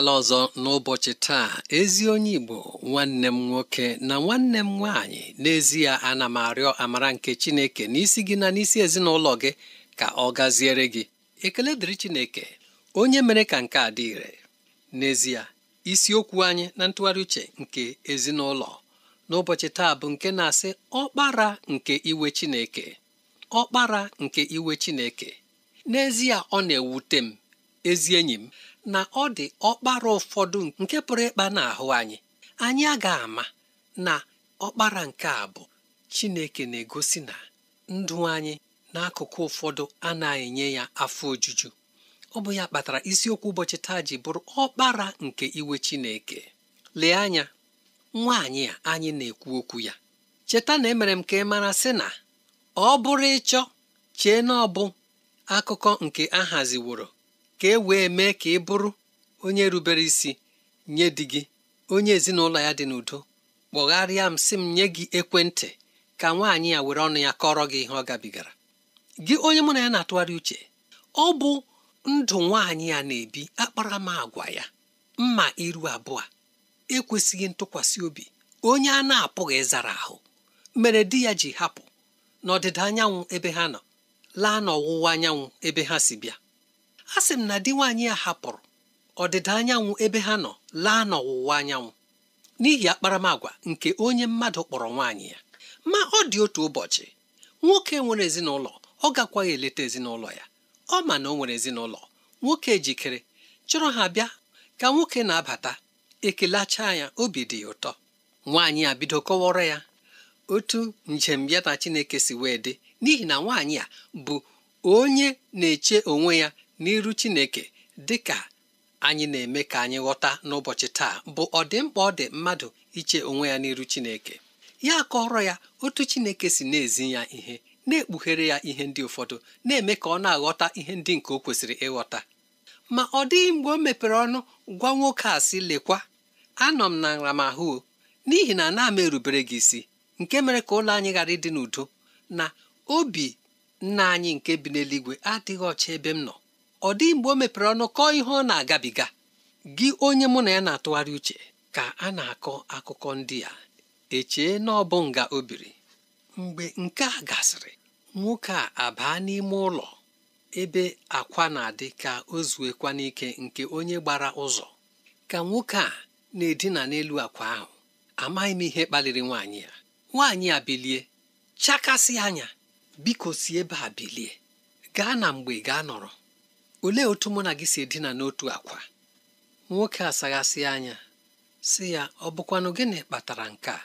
abịala ọzọ n'ụbọchị taa ezi onye Igbo nwanne m nwoke na nwanne m nwaanyị n'ezie ana m arịọ amara nke Chineke n'isi gị na n'isi ezinụlọ gị ka ọ gaziere gị ekele dịrị Chineke onye mere ka nke a dị ire n'ezie isiokwu anyị na ntụgharị uche nke ezinụlọ n'ụbọchị taa bụ nke na-asị ọkpara nke iwe Chineke ọkpara nke iwe Chineke n'ezie ọ na-ewute m ezi enyi m na ọ dị ọkpara ụfọdụ nke pụrụ ịkpa n'ahụ anyị anyị ga ama na ọkpara nke a bụ Chineke na-egosi na ndụ anyị n'akụkụ ụfọdụ anaghị enye ya afọ ojuju ọ bụ ya kpatara isiokwu ụbọchị taa ji bụrụ ọkpara nke iwe Chineke lee anya nwaanyị a anyị na-ekwu okwu ya cheta na emere m ka ị mara sị na ọ bụrụ ịchọ chee na ọ bụ akụkọ nke a ka e wee mee ka ị bụrụ onye rubere isi nye di gị onye ezinụlọ ya dị n'udo kpọgharịa m sị m nye gị ekwentị ka nwaanyị ya were ọnụ ya kọrọ gị ihe ọ gabigara gị onye mụ na ya na-atụgharị uche ọ bụ ndụ nwaanyị ya na-ebi akpara m agwa ya mma iru abụọ ekwesịghị ntụkwasị obi onye a na-apụghị ịzara ahụ mere di ya ji hapụ n'ọdịda anyanwụ ebe ha nọ laa n'ọwụwa anyanwụ ebe ha si bịa a sị m na di nwaanyị ya hapụrụ ọdịda anyanwụ ebe ha nọ laa n'ọwụwa anyanwụ n'ihi akparamagwa nke onye mmadụ kpọrọ nwaanyị ya ma ọ dị otu ụbọchị nwoke nwere ezinụlọ ọ gakwaghị eleta ezinụlọ ya ọ ma na o nwere ezinụlọ nwoke jikere chọrọ ha bịa ka nwoke na-abata ekelacha ya obi dị ya ụtọ nwaanyị a bido kọwara ya otu njem ya na Chineke si wee dị n'ihi na nwaanyị a bụ onye na-eche onwe ya n'iru chineke dị ka anyị na-eme ka anyị ghọta n'ụbọchị taa bụ ọdịmkpa ọ dị mmadụ iche onwe ya n'iru chineke ya kọrọ ya otu chineke si na-ezi ya ihe na-ekpughere ya ihe ndị ụfọdụ na-eme ka ọ na-aghọta ihe ndị nke o kwesịrị ịghọta ma ọ dịghị mgbe o mepere ọnụ gwa nwoke a sị lekwa anọ m na nramahụ n'ihi na ana m erubere gị isi nke mere ka ụlọ anyị ghara ịdị n'udo na obi nna anyị nke bi n'eluigwe adịghị ọcha ebe m nọ ọ dị mgbe o mepere ọnụ kọọ ihe ọ na-agabiga gị onye mụ na ya na-atụgharị uche ka a na-akọ akụkọ ndị a echee na ọ bụ nga o biri mgbe nke a gasịrị nwoke a abaa n'ime ụlọ ebe akwa na-adị ka o zuekwa n'ike nke onye gbara ụzọ ka nwoke a na-edina n'elu akwa ahụ amaghị m ihe kpaliri nwaanyị ya nwaanyị a bilie chakasị anya biko si ebe a bilie gaa na mgbe gaa nọrọ olee otu mụ na gị si edina n'otu akwa nwoke a saghasị anya sị ya ọ bụkwanụ gịnị kpatara nke a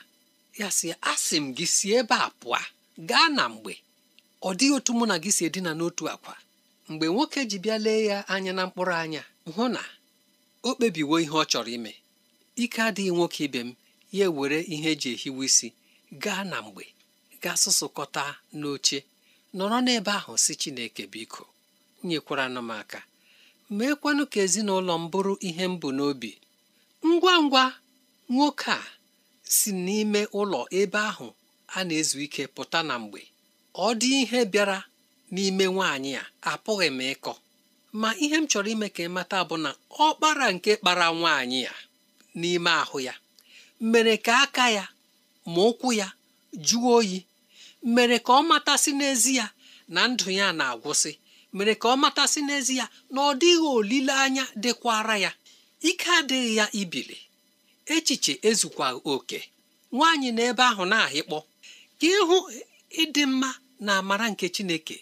ya sị ya asị m gị si ebe a pụọ gaa na mgbe ọ dịghị otu mụ na gị si edina n'otu akwa mgbe nwoke ji bịa lee ya anya na mkpụrụ anya hụ na o kpebiwo ihe ọ chọrọ ime ike adịghị nwoke ibe m ya ewere ihe eji ehiwe isi gaa na mgbe gaa sụsụkọta n'oche nọrọ n'ebe ahụ si Chineke biko nyekwara m aka meekwanụ ka ezinụlọ m bụrụ ihe m bụ n'obi ngwa ngwa nwoke a si n'ime ụlọ ebe ahụ a na-ezu ike pụta na mgbe ọ dị ihe bịara n'ime nwaanyị a apụghị m ịkọ ma ihe m chọrọ ime ka ị mata bụ na ọ kpara nke kpara nwaanyị a n'ime ahụ ya mere ka aka ya ma ụkwụ ya jụọ oyi mere ka ọ matasị ya na ndụ ya na-agwụsị mere ka ọ matasị n'ezie na ọ dịghị olileanya dịkwara ya ike adịghị ya ibili echiche ezukwa oke nwaanyị na ebe ahụ na-ahịkpọ ka ịhụ ịdị mma na amara nke Chineke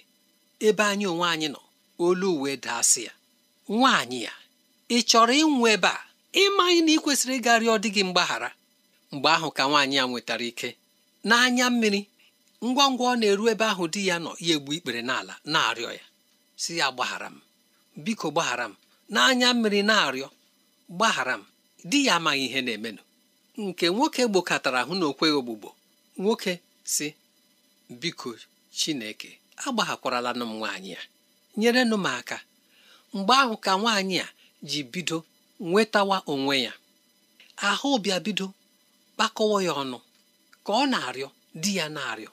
ebe anyị onwe anyị nọ olu uwe daasị ya nwaanyị ya ị chọrọ ịnwụ ebe a ịmaghị na ị kwesịrị ịga rịọ dị gị mgbaghara mgbe ahụ ka nwaanyị ya nwetara ike n'anya mmiri ngwa ngwa ọ na-eru ebe ahụ di ya nọ ya egbu ikpere n'ala na-arịọ ya si ya gbaghara m biko gbaghara m n'anya mmiri na-arịọ gbaghara m di ya amaghị ihe na-emenụ nke nwoke gbokọtara ahụ na okweghị ogbugbo nwoke si biko chineke agbaghakwaralanụ m nwaanyị ya nyerenụ m aka mgbe ahụ ka nwaanyị a ji bido nwetawa onwe ya ahụ bịa bido kpakọwa ya ọnụ ka ọ na-arịọ di ya na-arịọ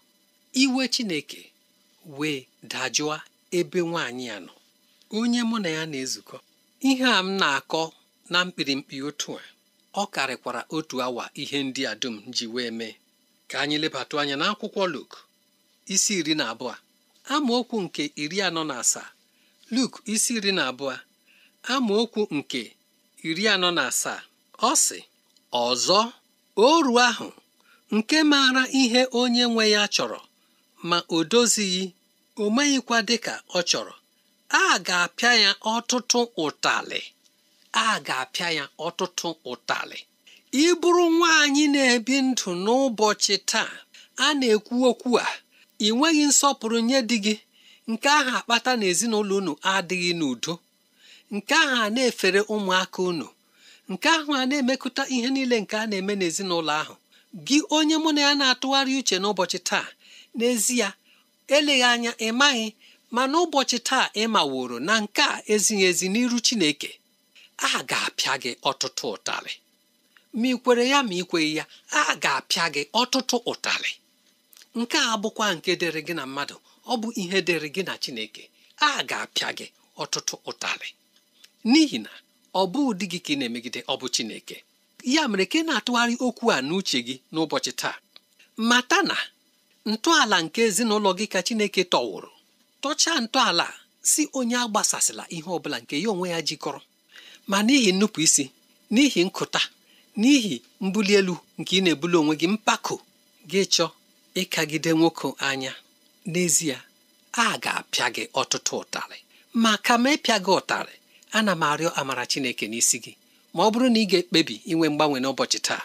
iwe chineke wee dajụa ebe nwaanyị a nọ onye mụ na ya na-ezukọ ihe a m na-akọ na mkpirimkpi otu a ọ karịkwara otu awa ihe ndị a dum ji wee mee ka anyị lebatụ anya na akwụkwọ Luk isi iri na abụọ amaokwu nke iri anọ na asaa Luk isi iri na abụọ amaokwu nke iri anọ na asaa ọ sị ọzọ oru ahụ nke maara ihe onye nwe ya chọrọ ma o dozighị o meghịkwa dịka ọ chọrọ a ga-apịa ya ọtụtụ ụtalị a ga-apịa ya ọtụtụ ụtalị ị bụrụ nwaanyị na-ebi ndụ n'ụbọchị taa a na-ekwu okwu a ị nweghị nsọpụrụ nye di gị nke ahụ akpata na ezinụlọ unu adịghị n'udo nke ahụ a na-efere ụmụaka unu nke ahụ a na-emekụta ihe niile nke a na-eme n'ezinụlọ ahụ gị onye mụ na ya na-atụgharị uche n'ụbọchị taa n'ezie eleghị anya ị maghị ma n'ụbọchị taa ị maworo na nke a ezighị ezi n'iru Chineke a ga-apịa gị ọtụtụ ụtarị ma ị kwere ya ma ị kweghị ya a ga-apịa gị ọtụtụ ụtarị nke a bụkwa nke dịrị gị na mmadụ ọ bụ ihe dịrị gị na Chineke a ga-apịa gị ọtụtụ ụtarị n'ihi na ọ bụ ụdị gị ka ị na-emegide ọ bụ Chineke ya mere ka ị na-atụgharị okwu a n'uche gị n'ụbọchị taa mata na ntọala nke ezinụlọ gị ka Chineke tọwụrụ tọchaa ntọala si onye agbasasịla ihe ọbụla nke ya onwe ya jikọrọ ma n'ihi nnupụ isi n'ihi nkụta n'ihi mbuli elu nke ị na-ebuli onwe gị mpako gị chọọ ịkagide nwoke anya n'ezie a ga-apịa gị ọtụtụ ụtarị ma ka ịpịa gị ụtarị ana m arịọ amara Chineke n'isi gị ma ọ bụrụ na ị ga-ekpebi inwe mgbanwe n'ụbọchị taa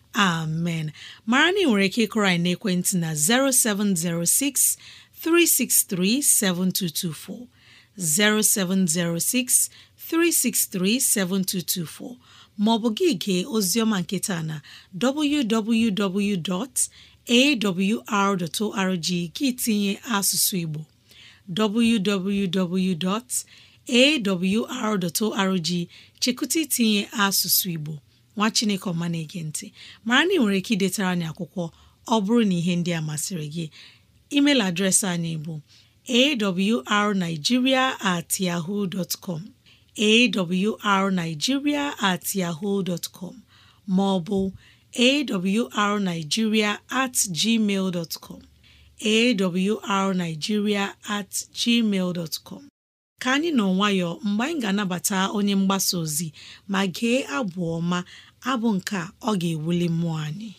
amen mara na nwere ike ịkụrọ anyị n'ekwentị na 0706 363 7224 0706 363 7224 maọbụ gị gee oziọma nketa na www.awr.org gị tinye asụsụ Igbo www.awr.org chekụta itinye asụsụ Igbo nwa chineke ọma na-ege ntị mara na ị nwere ike idetara anyị akwụkwọ ọ bụrụ na ihe ndị a masịrị gị email adreesị anyị bụ arigiria at com at com ma ọ bụ at gmail com at gmail ka anyị nọ nwayọ mgbe anyị ga-anabata onye mgbasa ozi ma gee abụ ọma abụ nke ọ ga-ewuli mmụọ anyị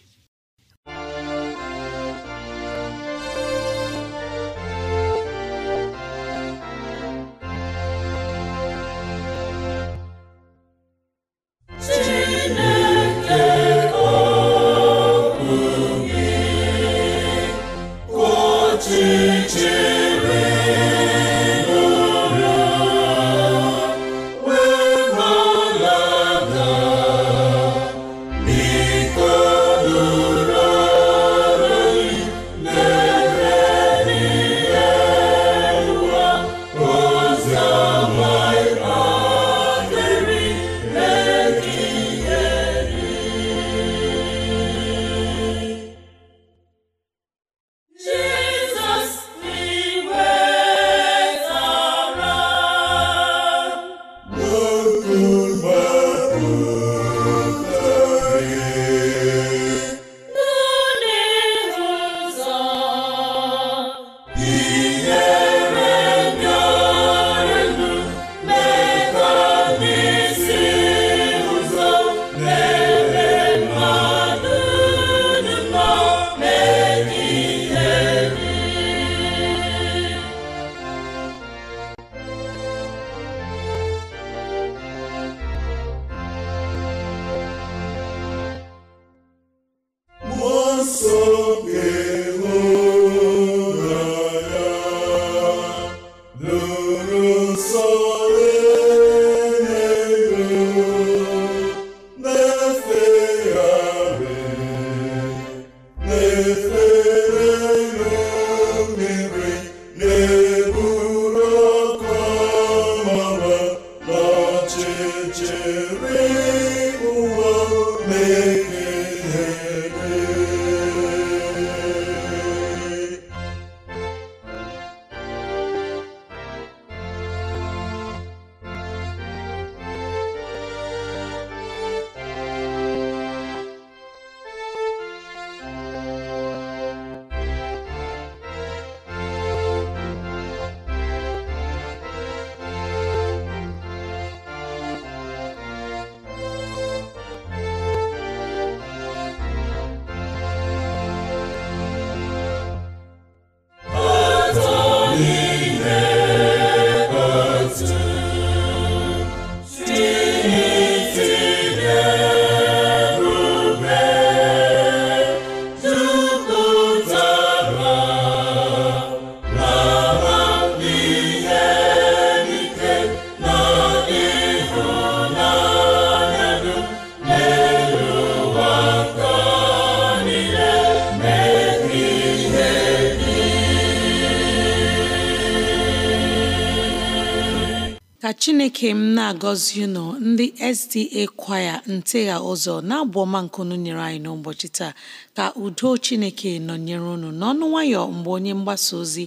chineke m na-agọzi unu ndị SDA kwaya ntegha ụzọ na-abụ ọma nkunu nyere anyị n'ụbọchị taa ka udo chineke nọnyere unu n'ọnụ nwayọ mgbe onye mgbasa ozi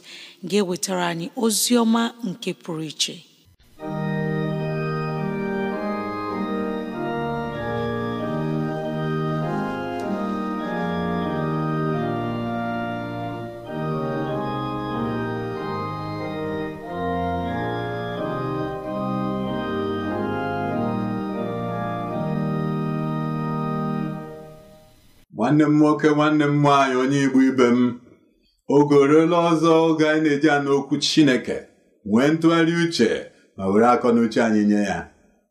ga-ewetara anyị ozi ọma nke pụrụ iche nwanne m nwoke nwanne m nwaanyị onye igbo ibe m oge ọzọ oge anyị na-eji anụ okwu chineke nwee ntụgharị uche ma were akọ akọnuche anyị nye ya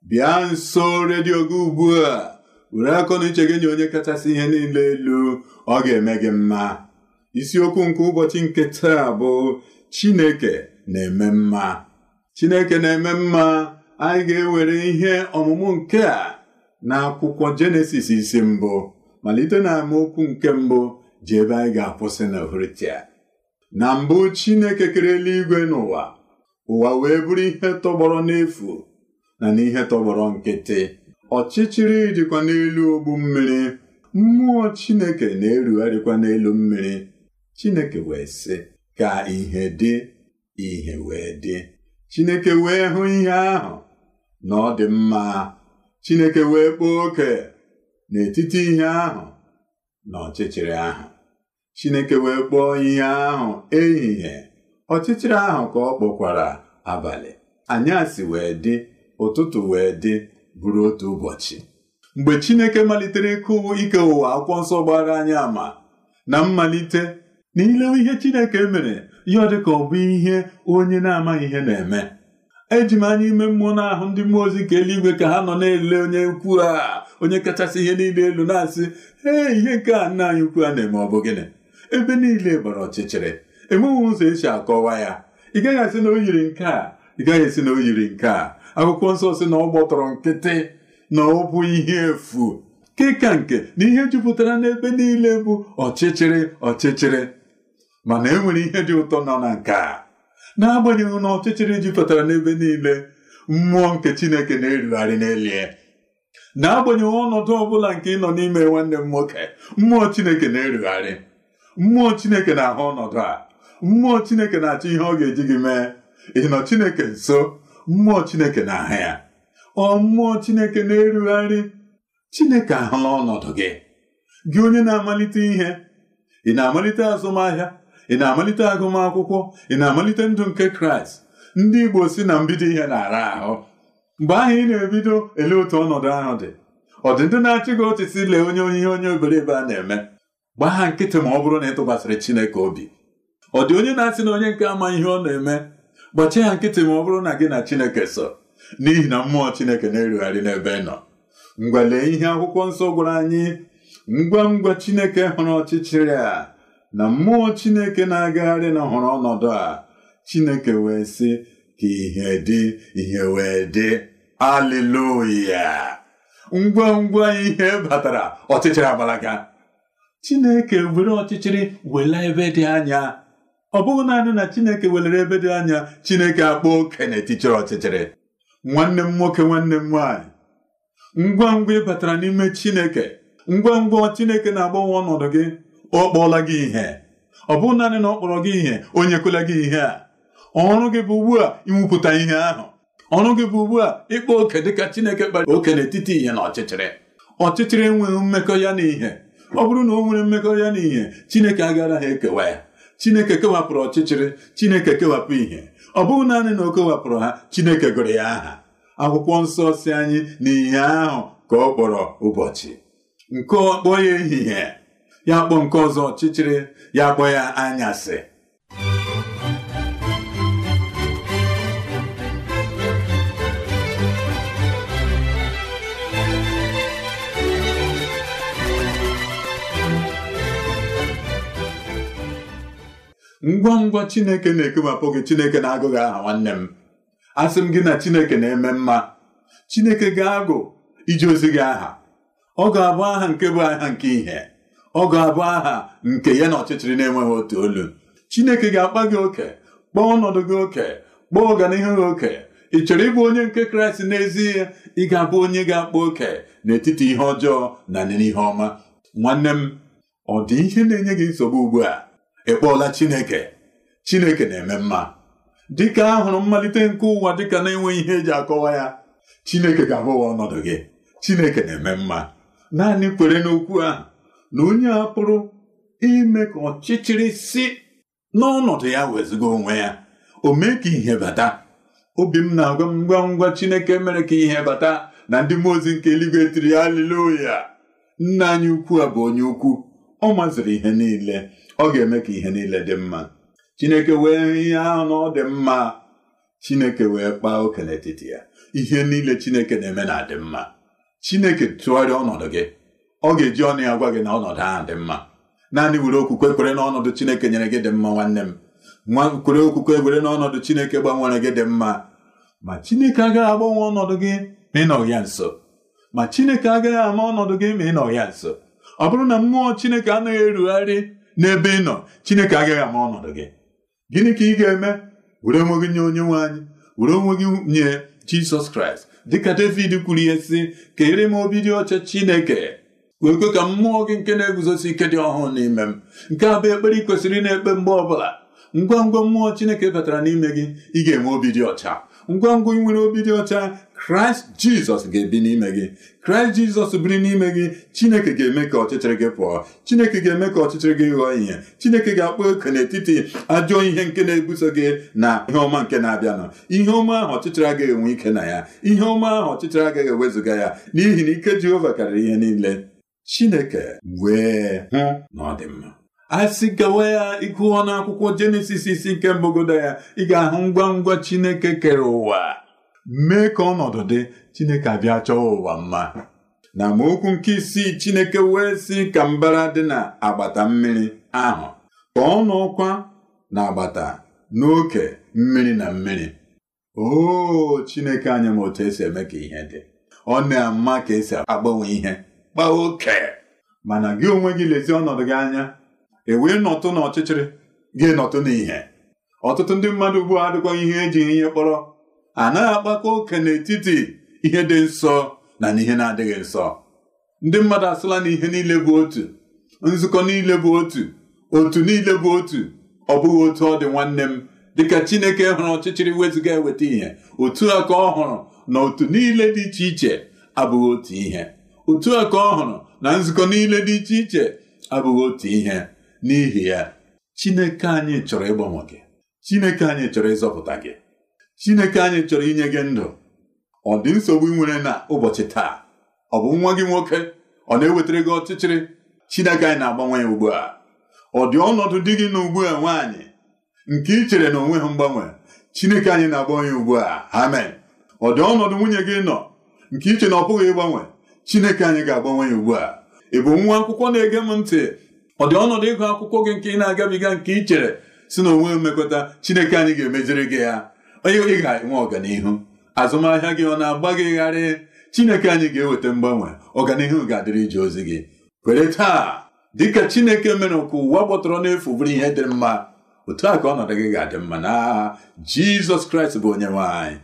bịa nso redio gị ugbu a were nuche gị nye onye kachasị ihe niile elu ọ ga-eme gị mma isiokwu nke ụbọchị nke taa bụ chineke na-eme mma chineke na-eme mma anyị ga-ewere ihe ọmụmụ nke a na akwụkwọ jenesis isi mbụ malite na amaokwu nke mbụ ji ebe anyị ga-akwụsị na vritia na mbụ Chineke kere eluigwe n'ụwa ụwa wee bụrụ ihe tọgbọrọ n'efu na n'ihe tọgbọrọ nkịtị ọchịchịrị dịkwa n'elu ogbu mmiri mmụọ Chineke na-erugharịkwa n'elu mmiri Chineke wee sị ka ihe dị ihe wee dị Chineke wee hụ ihe ahụ na ọ dị mma Chineke wee kpọọ oke n'etiti ihe ahụ na ọchịchịrị ahụ Chineke wee kpọọ ihe ahụ ehihie ọchịchịrị ahụ ka ọ kpọkwara abalị anyasị wee dị ụtụtụ wee dị bụrụ otu ụbọchị mgbe Chineke malitere ịkụ ike ụwa akwụkwọ nsọ gbara anyị ama na mmalite na ilewe ihe Chineke mere ya ọ dịka ọ bụ ihe onye na-amaghị ihe na-eme eji m anya ime mmụọ na ahụ ndị mmụọ ozi nke eluigwe ka ha nọ na-ele onye ukwu a. onye kachasị ihe niile elu na-asị ee ihe nke a nna anyị ukwu a na-eme ọ bụ gịnị ebe niile gbara ọchịchịrị enweghị ụzọ esi akọwa ya ị gaghị asị na o yiri nke a ị gaghị esi na o yiri nke a akwụkwọ nsọ si na ọ gbọtọrọ nkịtị na ọ bụ ihe efu keka nke na ihe jupụtara n'ebe niile bụ ọchịchịrị ọchịchịrị mana e nwere ihe dị ụtọ nọ na nke a agbanyeghị na ọchịchịrị jupụtara n'ebe niile mmụọ nke Chineke na-erugharị n'elie n'agbanyeghị ọnọdụ ọbụla nke ị nọ n'ime nwanne m nwoke mmụọ chineke na-erugharị mmụọ chineke na-ahụ ọnọdụ a mmụọ chineke na-achọ ihe ọ ga-eji gị mee ị nọ chineke nso mmụọ chineke na-ahụ ya ọ mmụọ chineke na-erugharị chineke ahụla ọnọdụ gị gị onye na-amalite ihe ị na-amalite azụmahịa ị na-amalite agụmakwụkwọ ị na-amalite ndụ nke kraịst ndị igbo si na mbido ihe na-ara ahụ mgbe ahụ ị na-ebido ele otu ọnọdụ ahụ dị ọ dị ndị na-achị gị ọchịchị lee onye onye onye obere ebe a na-eme gbaa ha nkịtị ma ọ bụrụ na ị tụkwasịrị Chineke obi ọ dị onye na-asị na onye nke ama ihe ọ na-eme gbachie ha nkịtị ma ọ bụrụ na gị na Chineke so n'ihi na mmụọ Chineke na-erugharị n'ebe ị nọ Ngwale lee ihe akwụkwọ nsọ gwara anyị ngwa ngwa Chineke hụrụ ọchịchịrị a na mmụọ Chineke na-agagharị na ọnọdụ a Chineke wee sị ka ihe dị ihe wee dị aleluya ngwa ngwa ihe batara ọchịchịrị agbalaga chineke were ọchịchịrị wela ebe dị anya ọ bụghị naanị na chineke welere ebe dị anya chineke akpọ okenye tichịrị ọchịchịrị nwanne m nwoke nwanne m nwaanyị ngwa ngwa ị batara n'ime chineke ngwa ngwa chineke na-agbanwe ọnọdụ gị ọ kpọọla gị ihe ọ bụghị naanị na ọ kpọrọ gị ihe onye kwela gị ihe a ọrụ gị bụ ugbu a ihe ahụ ọrụ gị bụ ugbu a ịkpa oke dịka Chineke kpara oke n'etiti ihe na ọchịchịrị ọchịchịrị enweghị mmekọ ya na ihe ọ bụrụ na ọ nwere mmekọ ya na ihe Chineke agaghị ekewa ya Chineke kewapụrụ ọchịchịrị Chineke kewapụ ihe ọ bụghị naanị na o kewapụrụ ha Chineke gụrụ ya aha akwụkwọ nsọ si anyị na ihe ahụ ka ọ kpọrọ ụbọchị nke ọkpọ ya ehihie ya kpọ nke ọzọ ọchịchịrị ya kpọ ya anyasị ngwa ngwa chineke na-ekewapụ gị chineke na-agụghị aha nwanne m asị m gị na chineke na-eme mma chineke ga-agụ iji ozi gị aha ọ ga-abụ aha nke bụ aha nke ihe ọ ga-abụ aha nke ya na ọchịchịrị na-enweghị otu olu chineke ga-akpa gị oke kpọọ ọnọdụ gị oke kpọọ ọganihu gị oke ị chọrọ ịbụ onye nke kraịst n'ezie ị ga-abụ onye ga-akpa oke n'etiti ihe ọjọọ na n'ihe ọma nwanne m ọ dị ihe na-enye gị nsogbu ugbu a Ị kpọọla Chineke Chineke na-eme mma dịka a hụrụ mmalite nke ụwa dịka na-enweghị ihe eji akọwa ya Chineke ga-agụwa ọnọdụ gị Chineke na-eme mma naanị kwere n'okwu ahụ na onye a pụrụ ime ka ọchịchịrị si n'ọnọdụ ya wezụga onwe ya o mee ka ihe bata obi m na-agwa m ngwa ngwa Chineke mere ka ihe bata na ndị mmụọ ozi nke eluigwe tiri ya aliloya nna anyị ukwu a bụ onye ukwu ọ maziri ihe niile ọ ga-eme ka ihe niile dị mma Chineke wee ihe ahụ na ọ dị mma Chineke wee kpaa oke n'etiti ya ihe niile Chineke na-eme na adị mma Chineke tụgharịa ọnọdụ gị ọ ga-eji ọnụ ya gwa gị na ọnọdụ ahụ dị mma naanị were okwukwe kwere ọnọdụ Chineke nyere gị dị mma nwanne m kwere okwukwe kwere ọnọdụ Chineke gbanwere gị dị mma ma Chineke agaghị agbanwe ọnọdụ gị ma ị ya nso ma Chineke agaghị ama ọnọdụ gị ma ị nọ ya nso ọ bụrụ na mmụọ Chineke anaghị erugharị n'ebe ị nọ Chineke agaghị ama ọnọdụ gị gịnị ka ị ga-eme were onwe gị nye onye nwe anyị were onwe gị nye Jizọs Kraịst dịka David kwuru ihe sị kere m obi dị ọcha Chineke wee kwe ka mmụọ gị nke na-eguzosi ike dị ọhụụ n'ime m nke a bụ ekpere ị kwesịrị ị na-ekpe mgbe ọbụla ngwa ngwa mmụọ Chineke batara n'ime gị ị ga-enwe obi dị ọcha ngwa ngwa nwere obi dị ọcha kraịst jizọs ga-ebi n'ime gị kraịst jizọs biri n'ime gị chineke ga-eme ka ọchịchịrị gị pụọ chineke ga-eme ka ọchịchịrị gị ghọọ ihe chineke ga-akpọ oke n'etiti ajọ ihe nke na-ebuso gị na ihe ọma nke na-abịanụ ihe ọma ahụ ọchịchịrị agaghị enwe ike na ya ihe ọma ahụ ọchịchịrị agaghị ewezuga ya n'ihi na ike jehova karịrị ihe niile chineke wee hụ na ọ dị mma a sị gawa ya ịkụwa n'akwụkwọ jenesis isi nke mbogodo ya ị ga-ahụ ngwa ngwa chineke kere ụwa mee ka ọnọdụ dị chineke abịa chọọ ụwa mma na amaokwu nke isii chineke wee sị ka mbara dị na agbata mmiri ahụ ka ọ nọkwa na agbata n'oke mmiri na mmiri "Oo! chineke anya ma otu esi eme ka ihe dị ọ na-ama ka esi agbanwe ihe gba oke mana gị onwe gị lezie ọnọdụ gị anya ewee nọtụ na ọchịchịrị ga-enọtụ n'ihe ọtụtụ ndị mmadụ ugbu a adịkwa ihe eji ihe kpọrọ anaghị akpakọ oke n'etiti ihe dị nsọ na n'ihe na-adịghị nsọ ndị mmadụ asịla na ihe niile bụ otu nzukọ niile bụ otu otu niile bụ otu ọ bụghị otu ọ dị nwanne m dịka Chineke hụrụ ọchịchịrị wezụga eweta ihe otu a ka ọ hụrụ na otu niile dị iche iche abụghị otu ihe otu a ka ọ hụrụ na nzukọ niile dị iche iche abụghị otu ihe n'ihi ya Chineke anyị chọrọ ịgbanwe gị Chineke anyị chọrọ ịzọpụta gị Chineke anyị chọrọ inye gị ndụ ọ dị nsogbu ị nwere na ụbọchị taa ọ bụ nwa gị nwoke ọ na-ewetara gị ọchịchịrị Chineke anyị na-agbanwe ya ugbu a ọ dị ọnọdụ dị gị n'ugbu a nwaanyị nke ị chere na onwe ha mgbanwe Chineke anyị na-agbanwe ya ugbu a amen ọ dị ọnọdụ nwunye gị nọ nke iche na ọ pụghị ịgbanwe Chineke anyị ga-agbanwe ya ugbu a ị bụ nwa akwụkwọ na-ege m ntị ọ dị ọnọdụ ịgụ akwụkwọ gị nke ị na-agabiga nke ị chere si na onwe mmekọta Chineke anyị ga-emeziri gị ya onye ị ga-enwe ọganihu azụmahịa gị ọ na-agba gị gharị Chineke anyị ga-eweta mgbanwe ọganihu ga-adịrị ije ozi gị kwere taa dịka Chineke mere ka ụwa gbọtọrọ n'efu bụrụ ihe dị mma otu a ka ọnọdụ gị ga-adị mma na Jizọs Kraịst bụ onye nwanyị.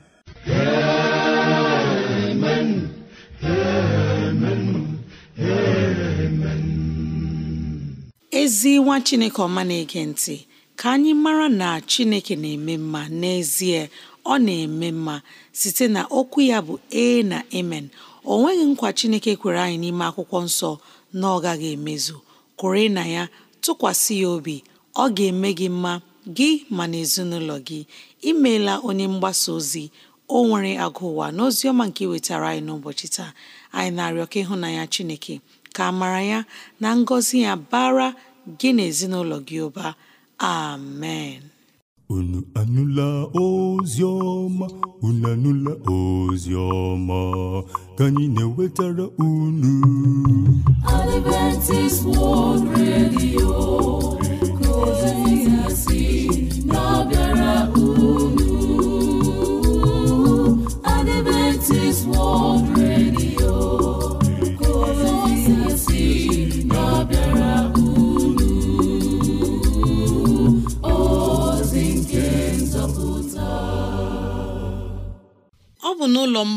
ezi nwa chineke ọma na-ege ntị ka anyị mara na chineke na-eme mma n'ezie ọ na-eme mma site na okwu ya bụ ee na emen o nweghị nkwa chineke kwere anyị n'ime akwụkwọ nsọ na ọ gaghị emezu kwere na ya tụkwasị ya obi ọ ga-eme gị mma gị ma na ezinụlọ gị imeela onye mgbasa ozi o nwere agụ ụwa n'ozi ọma nke wetara anyị n'ụbọchị taa anyị na-arịọ ka ịhụnanya chineke ka amara ya na ngọzi ya bara gị na ezinụlọ gị ụba amen unu anụla ozi ọma unu anụla ozi ọma ka anyị na-ewetara unu Adventist World Radio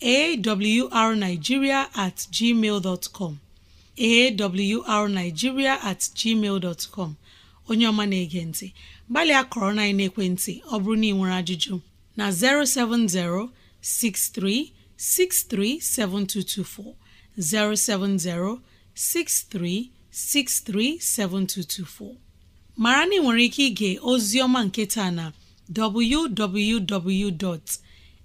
awrnigeria at gmail awrnigeria at gmail dot onye ọma na-ege ntị gbalịa kọrọ na ekwentị ọ bụrụ na ị nwere ajụjụ na 070 63 7224 070 63 63 7224 mara na ị nwere ike ige ozi ọma nke taa na www.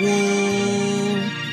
woo!